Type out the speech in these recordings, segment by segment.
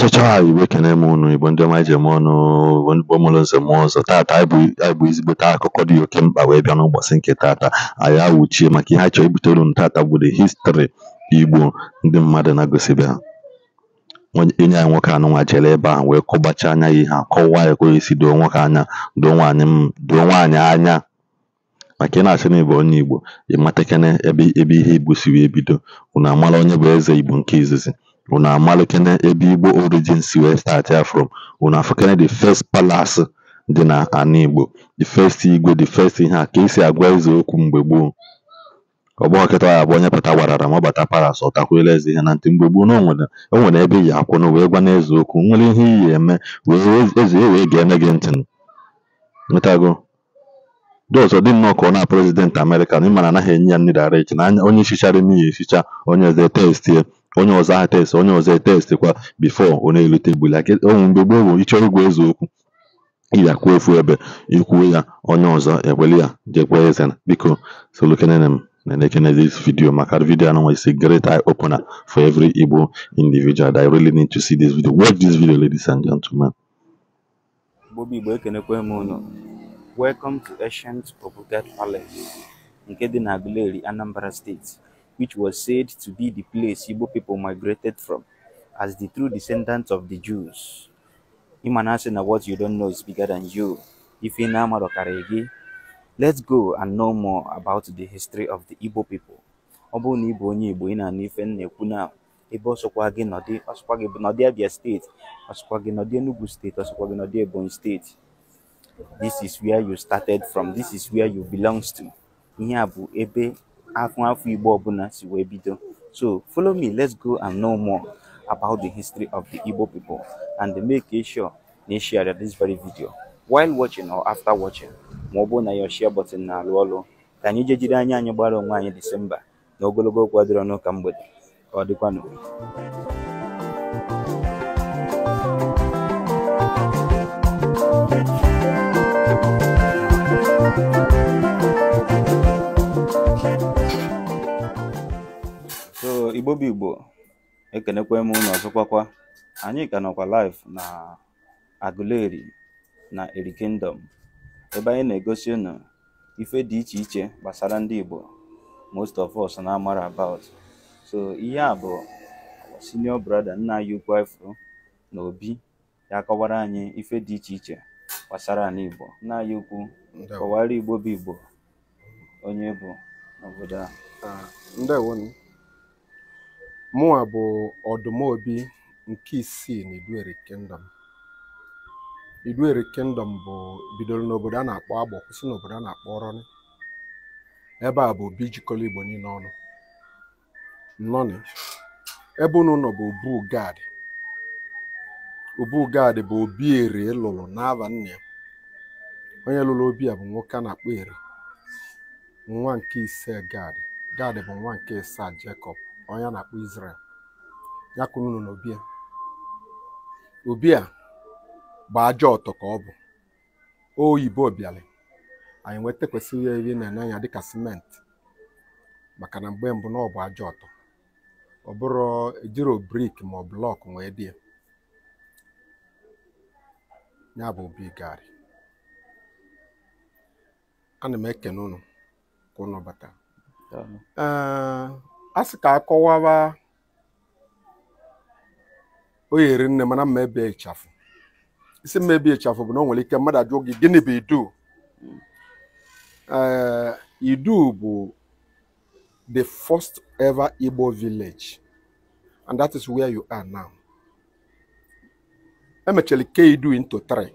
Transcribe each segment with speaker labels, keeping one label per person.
Speaker 1: a Igbo kene m unu Igbo ndị ọma eji eme ọnụ ndị Igbo nze mụọ ọzọ taata anyị bụ ezigbote akụkọ dị oke mkpa wee bịa n'ụbọchị nke taata anyị awụchie maka ihe anyị chọrọ ibutere unu taata bụ the history Igbo ndị mmadụ na-agụsịbe ha enyi anyị nwoke nwa jere ebe a wee kọbachaa anya ya ihe a kọwaa ya ka si doo nwoke anya doo nwaanyị anya maka ị na-asị na onye Igbo ịmatakene ebe ihe Igbo e siri ebido unu amara onye bụ eze Igbo nke izizi Unu na ebe Igbo origin si wee statịa from. Unu afụkene the first palace dị na ana Igbo, the first igwe, the first ihe a ka esi agwa eze okwu mgbe gboo. Ọgbọ kịta ya bụ onye pụta gbarara ma ọ bata palace ọ eze ihe na ntị. Mgbe gboo na o ebe iyi akwụnụ wee gwana eze okwu. nwere ihe iyi eme wee eze e wee geene gị ntị. Ịtago? Those dị nnọọ ka ọ na prezidentị Amerịka na ịma na anaghị enye ya mmiri ara echi na onye chichara imi ya echicha onye ọzọ ya. onye ọzọ a test onye ọzọ etest kwa bifọ ọ na-erute like onwe mgbe gboo bụ ịchọrọ igwu eziokwu ịya kwuo ofu ebe ikwuo ya onye ọzọ ekwele ya jekwee eze biko solukenene m na again this video maka video and it's a great eye opener for every Igbo individual that I really need to see this video watch this video ladies and gentlemen
Speaker 2: Bobby welcome to ancient Obugat Palace nke dị na Aguleri Anambra steeti. which was said to be the place Igbo people migrated from as the true descendants of the Jews. Imana said what you don't know is bigger than you. If you know let's go and know more about the history of the Igbo people. Obu ni na ni bụ onye Igbo ị na-anụ ife m na-ekwu na ebe ọsọkwa gị nọdị ọsọkwa gị nọdị Abia steeti ọsọkwa gị nọdị Enugu steeti ọsọkwa gị nọdị Ebonyi state. this is where you started from this is where you belongs to Ni abu ebe afụ afụ Igbo ọbụla si wee bido so follow me let's go and know more about the history of the Igbo people and make sure na ị e share this very video while watching or after watching ma ọ bụrụ na your share button na-alụ ọlụ ka anyị jee jiri anya anyị gbara onwe anyị Disemba na ogologo okwu adịrị n'ụka ka mgbede ka ọ igbo bụ igbo ekenekwe m ọzọ ọzọkwakwa anyị ka nọkwa live na Aguleri na Eri Kingdom ebe anyị na-egosi ụnụ ife dị iche iche gbasara ndị igbo most of us na-amara about so ihe a bụ senior brother nna anyị ukwu ifuru na obi ya kọwara anyị ife dị iche iche gbasara ala igbo nna anyị ukwu kọwara igbo bụ igbo onye bụ n'obodo a
Speaker 3: ah, mụnwa bụ obi nke isii na Iduere Kingdom Iduere Kingdom bụ bidoro n'obodo a na-akpọ Agbọ kwụsị n'obodo a na-akpọ Ọrọnị ebe a bụ obi jikọrọ Igbo niile ọnụ nnọnị ebe unu nọ bụ obu Ubugad bụ obi eri e lụrụ n'ava nne onye lụrụ obi a bụ nwoke a na-akpọ eri nwa nke ise gad gad bụ nwa nke ise Jekọb onye a na-akpọ Israel ya kụrụ na obi obia obi bụ ajọ ọtọ ka ọ bụ oyibo bịalị anyị nweta kwesịrị ya ihe na-enye anya dịka simenti maka na mgbe mbụ na ọ ajọ ọtọ ọ bụrụ ejiro brik ma ọ blọk nwee dị ya bụ obi gari ana m ekene unu ka unu bata a sị ka akọwawa oyiri nne mana mma ebe ịchafụ isi mma ebe ịchafụ bụ na o nwere ike mmadụ ajụọ gị gịnị bụ idu ee idu bụ the first ever Igbo village and that is where you are now emechara ke idu into three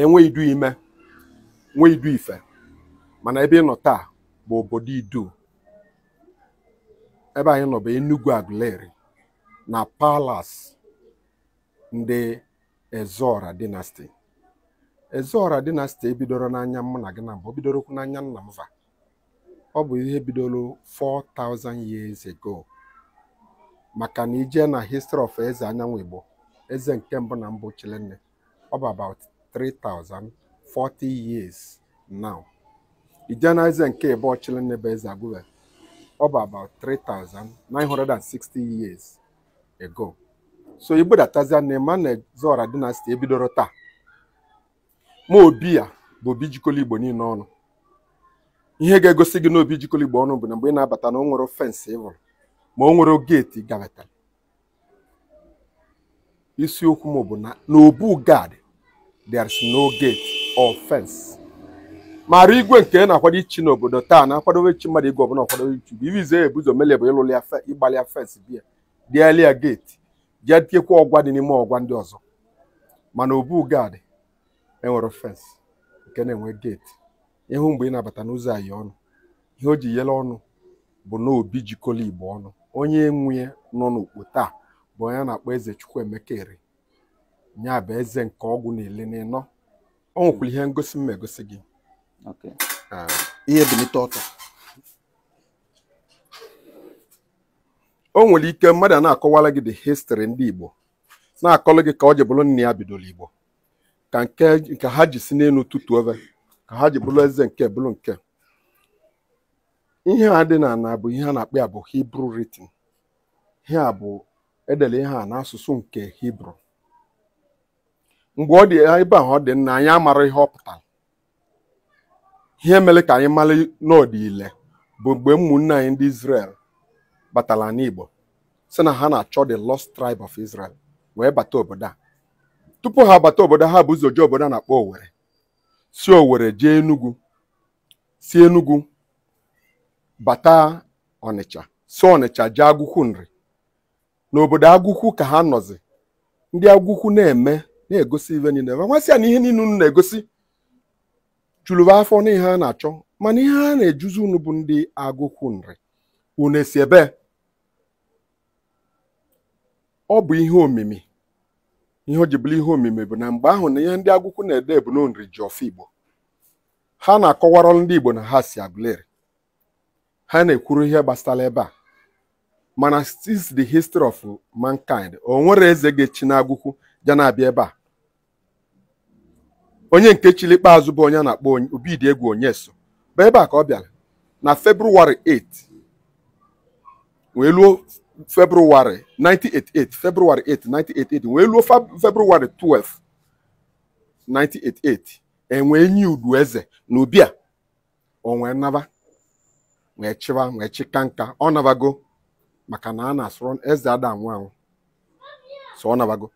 Speaker 3: enwe idu ime nwee idu ife mana ebe ị nọ taa bụ obodo idu ebe anyị nọ bụ Enugu Aguleri na Palas ndị Ezora dynasty Ezora dynasty ebidoro n'anya mụ na gị na mbụ bidorokwu n'anya nna m ọ bụ ihe bidoro 4000 years ago maka na ije na history of eze anyanwụ Igbo eze nke mbụ na mbụ Chilenne ọ bụ about 3040 years now ije na eze nke ịbụ Chilenne bụ eze Agụleri ọba about 3960 years ago so igbo datazia na emmanuel zora dynasty ebidoro taa ma obi ya bụ obi jikọrọ igbo niile ọnụ ihe ga-egosi gị na obi igbo ọnụ bụ na mgbe ị na-abata na o fensị ma o nwere geeti gabatara isiokwu m bụ na n'obu gad there is no gate or fence mara igwe nke na-akwado ichi n'obodo taa na-akwadowe chi mmadụ igwe ọbụla ọkwadowe ichi bụ ibi zee ebuzo mele bụ ịlụli ya ịgbalị ya fes bia dịali ya geeti jee tiekwa ọgwa dị n'ime ọgwa ndị ọzọ mana obu gadị enwere fens nke na-enwe geeti ịhụ mgbe ị na-abata n'ụzọ anyị ọnụ ihe o ji yele ọnụ bụ na obi jikọla igbo ọnụ onye enwe nọ n'okpo taa bụ onye na-akpọ eze chukwu Ire nya bụ eze nke ọgwụ na-ele n'ịnọ ọ nwekwara ihe ngosi mma egosi gị Ah, ihe belite ọtọ o nwere ike mmadụ a na-akọwara gị the history ndị Igbo na-akọlụ gị ka ọ ji bụrụ nne ya bidoro Igbo ka nke ha ji si n'elu tutuo ka ha ji bụrụ eze nke bụrụ nke ihe a dị na na bụ ihe a na-akpọ ya bụ hibru written ihe a bụ edere ihe a n'asụsụ nke Hibru mgbe ọ dị ebe ahụ ọ dị nna anyị amara ihe ọ pụtara ihe mere ka anyị mara n'ọdịile bụ mgbe ụmụnne anyị ndị Israel batara n'Igbo si na ha na-achọ the lost tribe of Israel wee bata obodo a tupu ha bata obodo ha bụ ụzọ ji obodo a na-akpọ Owere si Owere jee Enugu si Enugu bata Ọnịcha si Ọnịcha jee Agụkwụ nri n'obodo Agụkwụ ka ha nọzi ndị Agụkwụ na-eme na-egosi ive niile nwasị na ihe niile unu na-egosi chụlụba afọ n'ihe a na-achọ mana ihe a na-ejuzi unu bụ ndị agụkwu nri unu esi ebe ọ bụ ihe omimi ihe o ji bụrụ ihe omimi bụ na mgbe ahụ na ihe ndị agụkwu na-ede bụ nri ji ọfọ igbo ha na-akọwara ndị igbo na ha si agụleri ha na-ekwuru ihe gbasara ebe a mana since the history of mankind o nwere eze ga-echi na agụkwu na-abịa ebe a onye nke chili ikpeazụ bụ onye na-akpọ Obidiegwu Onyeso bụ ebe a ka ọ bịara na February 8 wee luo February 1988 February 1988 wee luo February 12 1988 enwe nye udu eze na Ubia onwee naba wee chịwa wee chịka nka ọ nabago maka na a na-asụrụ eze ada anwụ anwụ so ọ nabago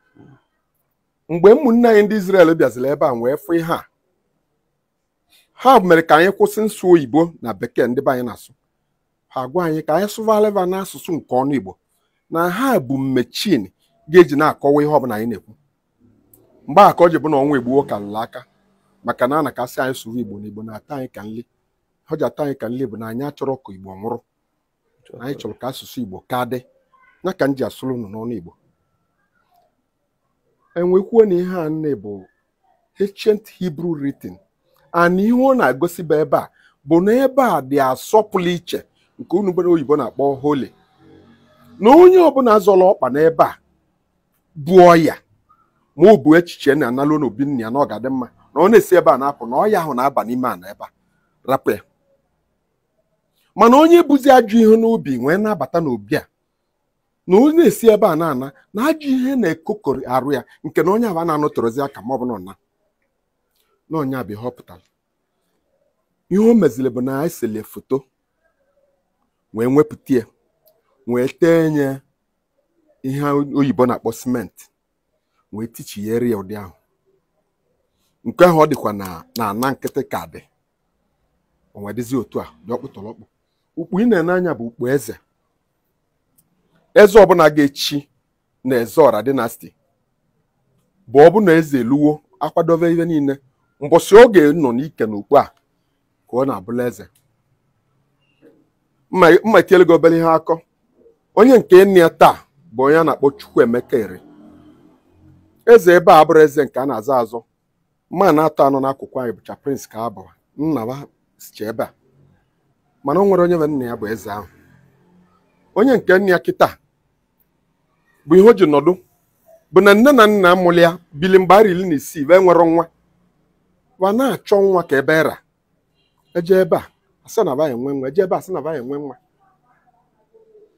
Speaker 3: mgbe ụmụnne anyị ndị Izrel bịaziri ebe a wee fụ ihe a ha mere ka anyị kwụsị nsụ oyibo na bekee ndị be anyị na-asụ ha gwa anyị ka anyị sụva na n'asụsụ nke ọnụ Igbo na ha bụ mmechin ga-eji na-akọwa ihe ọbụla anyị na-ekwu mgbe aka ka ji bụ na ọnwa egbuo ka nla aka maka na a na anyị sụrụ Igbo na Igbo na-ata anyị ka nli ọjị ata anyị ka nli bụ na anyị achọrọ ka Igbo nwụrụ anyị chọrọ ka asụsụ Igbo ka dị ya ka m ji asụrụ unu n'ọnụ Igbo enwekwuo na ihe a nne bụ ancient Hebrew writing and ihe ọ na-egosi bụ ebe a bụ na ebe a dị asọpụla iche nke unu oyibo na-akpọ holi na onye ọbụla zọrọ ọkpa n'ebe a bụ ọya ma ọ bụ echiche na analụ n'obi ya na ọ ga-adị mma na ọ na-esi ebe a na-apụ na ọya ahụ na-aba n'ime a na ebe a rapụ ya mana onye buzi ajọ ihe n'obi nwee na-abata n'obi a na onye na-esi ebe a na-ana na ajụ ihe na-ekokọrị arụ ya nke na onye aba na anọ aka ma ọ bụ na ọna na ihe o meziri bụ na esele foto wee nwepụta wee tee nye ihe oyibo na-akpọ simenti wee tichiere ya ụdị ahụ nke ahụ ọ dịkwa na na nkịtị ka dị otu a dị ọkpụtọrọkpụ ukpu ị na-ene anya bụ ukpu eze eze ọbụla ga-echi na Ezeọra dinasti bụ ọbụna eze eluwo akwadobe ihe niile mbọsị oge nọ n'ike na a ka ọ na-abụla eze mma gị obere ihe akọ onye nke nne ya taa bụ onye a na-akpọ Chukwuemeka ere eze ebe a bụrụ eze nke a na-azọ azọ ma na-atọ anọ n'akụkụ anyị bụcha prince ka abụ nna ha sicha ebe a mana o nwere onye nwe nna ya bụ eze ahụ onye nke nne ya kịta bụ ihe o ji nọdụ bụ na nne na nna amụlị ya bili mgbe arị iri na isii wee nwere nwa wa na-achọ nwa ka ebe ra eje ebe a asị na baghị enwe nwa eje ebe a asị na baghị enwe nwa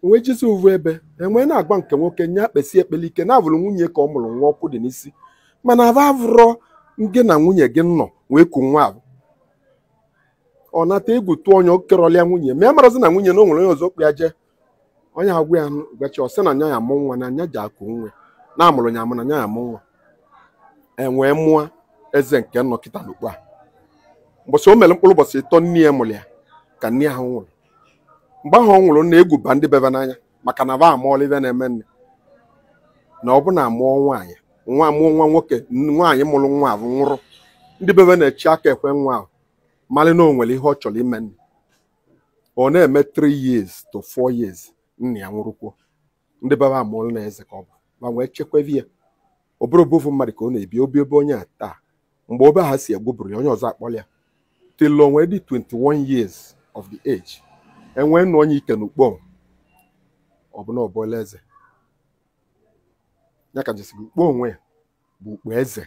Speaker 3: onwe jizi uvu ebe enwe na-agba nke nwoke nye akpesi ekpele ike na-abụrụ nwunye ka ọ mụrụ nwa ọkụ dị n'isi mana aba avụrọ gị na nwunye gị nọ wee ku nwa ahụ ọ nata egwu tụọ onye okerọlịa nwunye ma ya e marazi na nwunye na o nwere onye ọzọ kpụ onye agwụ ya ọ sị na nya ya amụ nwa na anya ji akụ nwe na amụrụ ya amụ na nya ya amụ nwa enwee mụọ eze nke nnọkịta n'okpu a o mere mkpụrụ ụbọchị ịtọ nne ya mụrụ ya ka nne ahụ nwụrụ mgbe ahụ ọ nwụrụ na-egwuba ndị bebe n'anya maka na ba amụọla ibe na-eme nne na ọ bụ na amụọ nwaanyị nwa mụọ nwa nwoke nwaanyị mụrụ nwa ahụ nwụrụ ndị bebe na-echi aka ekwe nwa ahụ malị na o nwere ihe ọ chọrọ ime nne ọ na-eme 3 years to 4 years nna ya nwụrụkwuo ndị baba amụọla na eze ka ọ bụ ma nwee chekweve ya ọ bụrụ obovu mmadụ ka ọ na-ebi obi ebe onye a taa mgbe obe ha si egwuburu ya onye ọzọ akpọla ya till onwe dị 21 years of the age enwee nụ onye ike n'ukpo ọbụna ọbụla eze ya ka jesi ukpo onwe ya bụ ukpo eze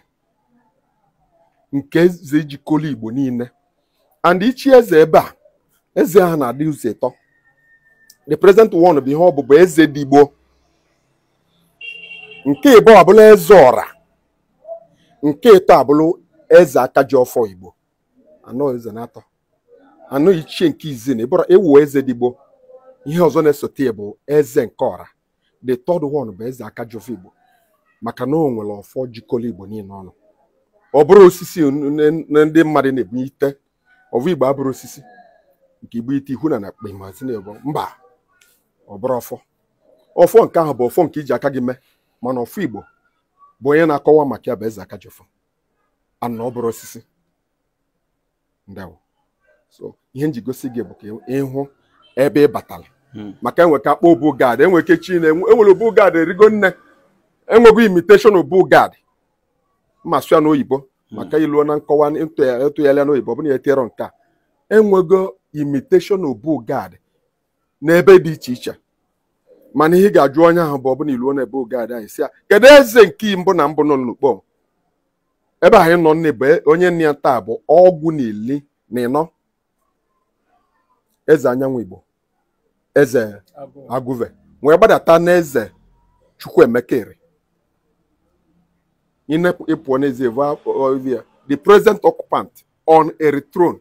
Speaker 3: nke eze jikọla igbo niile and ichi eze ebe a eze ahụ na-adị ụzọ ịtọ the present one bụ ihe ọ ọbụbụ eze dị digbo nke ịbụ abụla eze ọra nke ịtọ abụla eze aka ji ọfọ igbo anọ eze na-atọ anọ ichie nke izi na ịbụrụ ewu eze digbo ihe ọzọ na-esote ya bụ eze nke ọra the third one bụ eze aka ji ọfọ igbo maka na o nwere ọfọ jikọrọ igbo niile ọnụ ọ bụrụ osisi na ndị mmadụ na-ebunye ite ọvụ igbo abụrụ osisi nke igbo ite ihu na na akpa imazi na-ebo mba Ọbụrụ bụrụ ọfọ ọfọ nke ahụ bụ ọfọ nke iji aka gị mee mana ọfọ igbo bụ onye na-akọwa maka ya bụ eze aka ji ọfọ ana ọ osisi ndawo so ihe nji gosi gị bụ ka ịhụ ebe ị batara hmm. maka enwe ka akpọ obu gad enwe ke chi na enwere obu gad erigo nne enwego imitation obu gad ma sụa n'oyibo hmm. maka ilu na nkọwa ntụgharịa n'oyibo ọ bụrụ na ya etinyerọ nke a enwego imitation obu gad n'ebe dị iche iche mana ihe ga-ajụ onye ahụ bụ ọbụna iluo n'ebe oge ada anyị si ya kedu eze nke mbụ na mbụ nọ n'ukpo ebe anyị nọ nne onye nne ya taa bụ ọgwụ na ili na ịnọ eze anyanwụ igbo eze agụve wee gbadata n'eze chukwuemekere ịpụọ ya the president occupant on a throne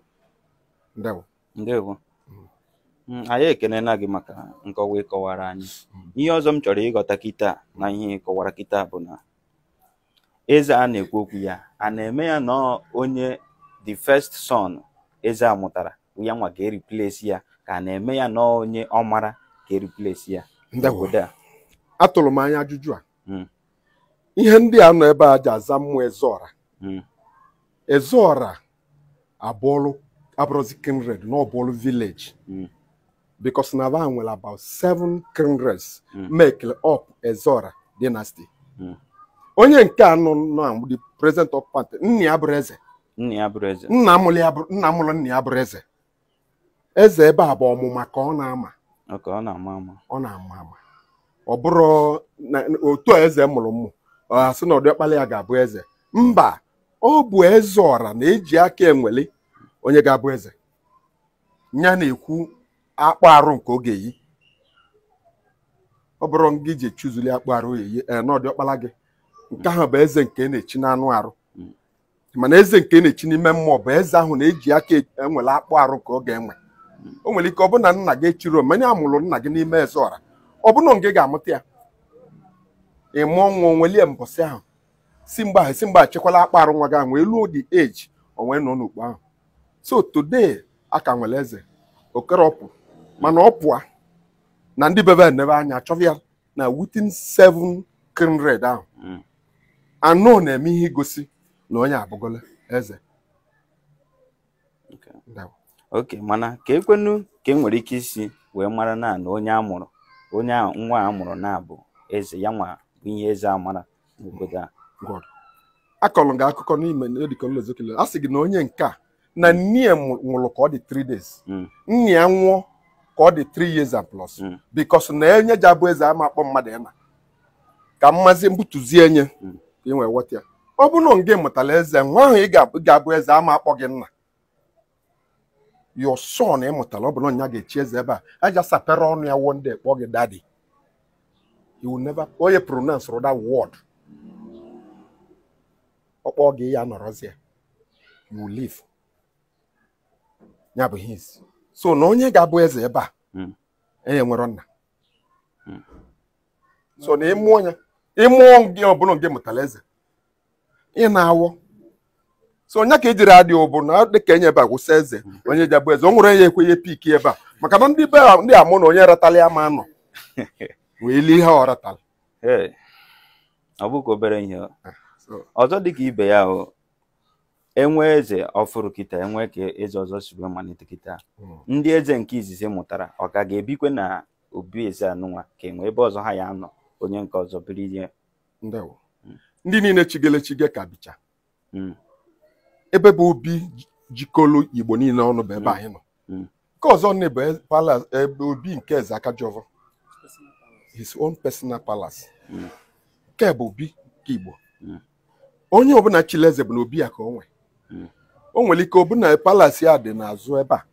Speaker 3: ndewo
Speaker 2: Mm, anyị ekelela gị maka nkọwa ịkọwara anyị mm. ihe ọzọ m chọrọ ịghọta kịta na ihe ịkọwara kịta bụ na eze a na-ekwu okwu ya a na-eme ya na onye the first son eze a mụtara ya nwa ka eriplesi ya ka a na-eme ya na
Speaker 3: onye ọ mara ka eriplesi ya obodo a atụrụ m anya ajụjụ a mm. ihe ndị a nọ ebe a ji aza mmụọ ezeọra ezeọra abụọlụ abụrụzi kinred na ọbụọlụ vileji because Nava nwere about seven kingdoms hmm. make up na dynasty hmm. onye nke anọ nọ the president of party nna ya bụrụ eze nna eze eze ebe a bụ ọmụma ka ọ na-ama ọ bụrụ eze mụrụ mụ asị na Ọdiọkpala ga-abụ eze mba ọ bụ eze na-eji aka enwele onye ga-abụ eze ya na-ekwu akpụ arụ nke oge yi ọ bụrụ gị ji echuzuli akpụ arụ eyi eh, n'ọdị ọkpala gị nke ahụ bụ eze nke na-echi n'anụ arụ mana eze nke na-echi n'ime mmụọ bụ eze ahụ na-eji aka e, enwele akpụ arụ ka ọ ga-enwe o nwere ike ọ bụ na nna gị chiri mmanya amụrụ nna gị n'ime eze ọra ọ bụrụ na ga-amụta ya ịmụ nwa onwelie mbọsị ahụ si mgbe ahụ si mgbe achekwala akpụ arụ nwa gị ahụ wee luo the onwe onwee nọ n'okpu ahụ so today a ka nwere eze okerọpụ mana ọ pụa na ndị bebe n'ebe anya chọba na within seven kindred ahụ hmm. anụ na-eme ihe igosi na onye abụgola eze
Speaker 2: oke mana ka ekwenu ka e nwere ike isi wee mara na na onye mụrụ onye nwa a mụrụ na bụ eze ya nwa bụ ihe eze a
Speaker 3: mara n'obodo a akọrọ gị akụkọ n'ime dịkọlozokele a sị gị na onye nke a na nne nwụrụ ka ọ dị 3 days hmm. nna ya nwụọ ka ọ dị 3 years and plus hmm. because na enye ji abụ eze ama akpọ mmadụ ya na ka mmazi mbutuzie enye hmm. ka ị nwee weta ya ọ bụrụ na gị mụtara eze nwa ahụ ị ga-abụ eze ama akpọ gị nna your son ị mụtara ọ bụrụ na ya ga-echi eze ebe a aja sapere ọnụ ya wụọ ndị kpọọ gị daddy onye pronounce rụda wod ọ kpọọ gị ya nọrọzie you will leave ya bụ his so na onye ga-abụ eze ebe a enye hmm. nwere nna hmm. so na ịmụọ ya ịmụọ gị ọbụla nke mụtara eze ị na-awọ so onye ka ejiri adị ụbụ na dịka enye ebe a gwụsị eze hmm. onye ji abụ eze o nwere ya ekwenye piki ebe a maka na ndị be ndị amụ na onye ratala ya ma anọ wee lie ihe ọ ratala
Speaker 2: ọ bụghị obere ihe ah, ọzọ dịka ibe ya o enwe eze ọfụrụ kịta enwe ka eze ọzọ si wee malite kịta hmm. ndị eze nke izizi mụtara ọ ka ga-ebikwe na obi eze anụnwa ka enwe ebe ọzọ ha ya anọ onye nke ọzọ biri ihe
Speaker 3: hmm. ndị niile chigele chige ka bịcha hmm. ebe bụ obi jikọrọ igbo niile ọnụ bụ ebe anyị nọ nke ọzọ bụ ebe obi nke eze aka Akajọfọ his own personal palace nke bụ obi nke igbo onye ọbụla chile eze bụ na obi ya ka o nwee o nwere ike ọbụ na palasi a dị n'azụ ebe a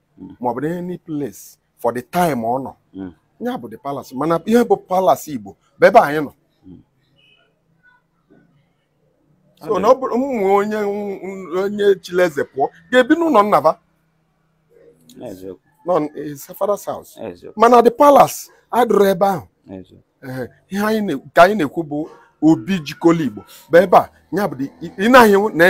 Speaker 3: ma ọ bụ any place for the time ọ nọ ya bụ the palace mana ihe bụ palasi Igbo bụ ebe anyị nọ so na ọ bụrụ ụmụ onye onye chileze pụọ ga-ebi n'ụlọ nnaba nọ father's house mana the palace adụrụ ebe ahụ ihe anyị ka anyị na-ekwu bụ obi jikọla Igbo bụ ebe a ya bụ ị na-ahịa na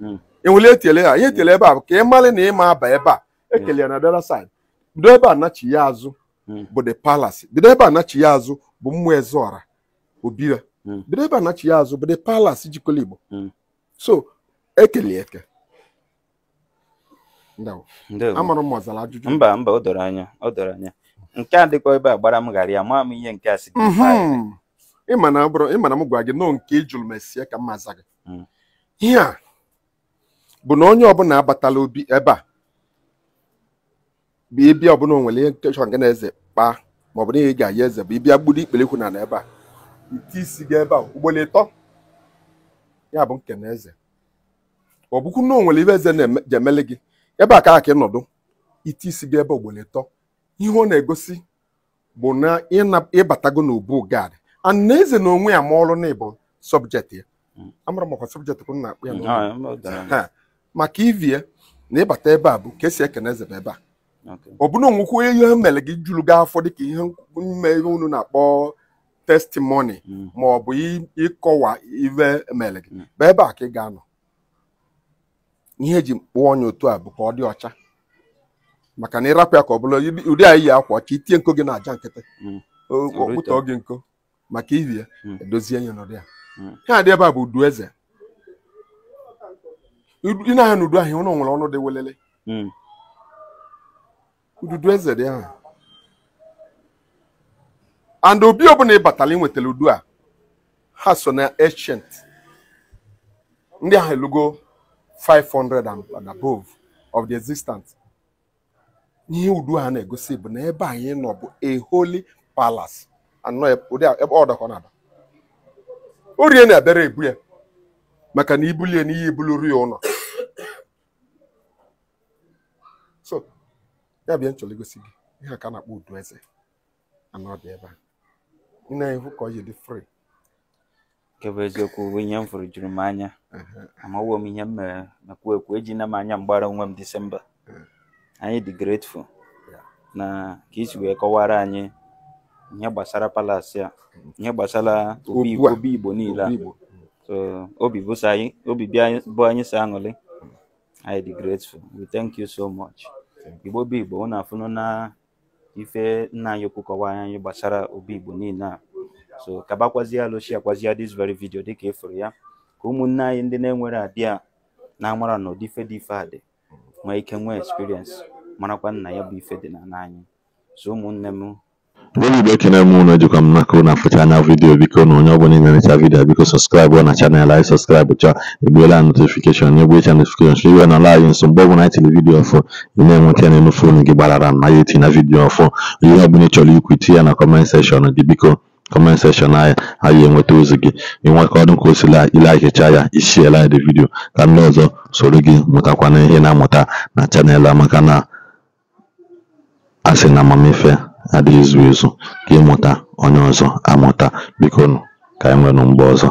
Speaker 3: hmm. enwere etele ha ihe etele ebe a ka ị mara na ịma aba ebe a hmm. ekele ya na dara side bido ebe a nachi ya azụ hmm. bụ the palace bido ebe a nachi ya azụ bụ mmụọ ezeọra obira hmm. bido ebe a nachi ya azụ bụ the palace jikọrọ igbo so ekele eke
Speaker 2: amara m ọzara ajụjụ mba mba o doro anya o doro anya nke
Speaker 3: a dịkwa ebe a gbara m ghara ya maa m ihe nke a si ịma mhm. na m gwa gị nọọ nke ị jụrụ mesie ka m maza gị ihe a bụ na onye ọbụla abatala obi ebe a bụ ịbịa ọbụla onwere ihe nkechọ nke na-eze kpaa ma ọ bụ na ihe ga-ayi eze bụ ịbịa gburu ikperekwu na ebe a ite isi gị ebe a ugboro ịtọ ya bụ nke na eze ọ bụkwu na onwere ibe eze na-emele gị ebe a ka aka ịnọdụ ite isi gị ebe ugboro ịtọ ihe ọ na-egosi bụ na ịbatago n'ubu gad ana eze na onwe ya ma ọrụ na ịbụ sọbjekt ya hmm. amara m ọkwa sọbjekt na-akpụ ya maka ivie na ịbata ebe a bụ ka esi ekene eze ebe a ọ bụna onwekwu ihe mere gị juru gị afọ dịka ihe mme ihe unu na-akpọ testimoni mm. ma ọ bụ ịkọwa ive mere gị mm. bụ ebe a ka ị ga-anọ ihe eji kpụọ onye otu a bụ ka ọ dị ọcha maka na ịrapụ ya ka ọ bụla ụdị anyị iyi akwa ka itie nko gị na aja nkịtị mm. okpụtọ gị nko maka ivie edozie ya n'ụdị ya ihe a dị ebe a bụ udu eze ị na-anya n'udu ahịa ụlọ nwere ọnụ dị welele hmm. ududu eze dị ahụ and obi ọbụla ị batara nwetara udu a ha so na ancient ndị ahụ elugo 500 and above of the existence ihe udu a na-egosi bụ na ebe anyị nọ bụ a holy palace anọ ebe ọ dọkọ na-aba orie na-abịara ebu ya maka na ibulie n'ihe ibuluru ya ụlọ ya bịa nchọrọ igosi gị ihe aka na-akpọ udu eze anọ dị ebe a ị na-ehu ka ọ yi dị fri
Speaker 2: nke bụ eziokwu ihe m fụrụ juru m anya amawo m ihe m mere mekwu ekwu ejina m anya mgbara onwe m disemba anyị dị grateful na ka isi wee kọwara anyị ihe gbasara palasi a ihe gbasara obi igbo niile a obi bụ anyị sị aṅụrị anyị dị grateful we thank you so much igbo bụ igbo unu afụnụ na ife nna anyị okwu kọwara anyị gbasara obi igbo niile a so kabakwazie alụchi akwazia dis very video dịka ịfụrụ e ya ka ụmụnne anyị ndị na-enwere adị a na-amara na ụdị ife dị ife a dị nwee ike nwee experience marakwa nna ya bụ ife dị na anyị so ụmụnne m
Speaker 1: Ndị Igbo ekene m unu, ejikwa m n'aka unu afụcha anya vidiyo biko na onye ọbụla ị na-enecha vidiyo biko sọskraịbụ na chanel anyị sọskraịbụ chọọ igbuola notifikeshọn na egbuecha notifikeshọn so iwe nọla anyị nso mgbe ọbụla anyị tiri vidiyo ọfụ ị na-enweta n'elu fonu gị gbarara m na ya etina vidiyo ọfụ ihe ọbụla ị chọrọ ikwu tinye ya na kọment sekshọn dị biko kọment sekshọn anyị anyị enweta ozi gị ịnwekọdụ ka o sila ilaikecha ya isiela anyị dị vidiyo ka ndị ọzọ soro gị mụtakwana ihe na-amụta na chanel maka na asị na amamife Adịghị ezu ezu ka ịmụta onye ọzọ amụta, bikonu ka enwenu mgbe ọzọ